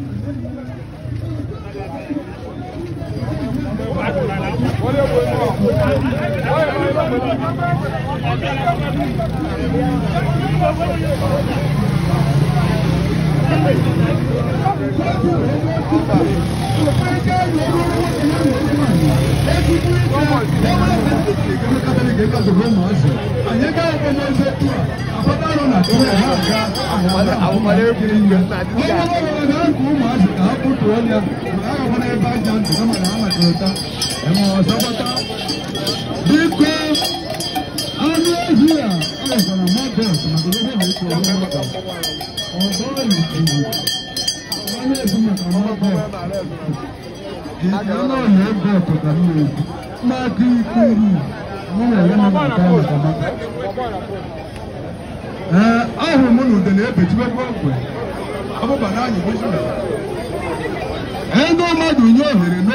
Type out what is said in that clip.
Ayeka ọmọ ọsẹ, ayeka ọmọ ọsẹ tó a, àbá ahomade firi gbèsè àti ká. wọ́n bá wọlé náà kó màá sì ká kó tó ọ́nìyà màá wà wọlé bá jà ń tẹ̀lé màá mà tó ta ẹ̀mọ ọ̀sọ́pọ̀tà. bíkọ́ anú ẹ̀jú à ọ̀sán àmọ́ bẹ́ẹ̀ sọ̀rọ̀ lọ́wọ́ mi kò wọ́n mọ̀ tó. ọ̀sán ẹ̀yìn tìwò wọ́n yẹ fún mi àmọ́ bẹ́ẹ̀. ìdílé náà yẹ bẹ́ẹ̀ tó tàbí rẹ̀ máa dín ikú mi. mo yẹ Eh, ahụrụ m na ude na-ebechibe mgbe ọbụba na anyị ego eh, mmadụ nye ohere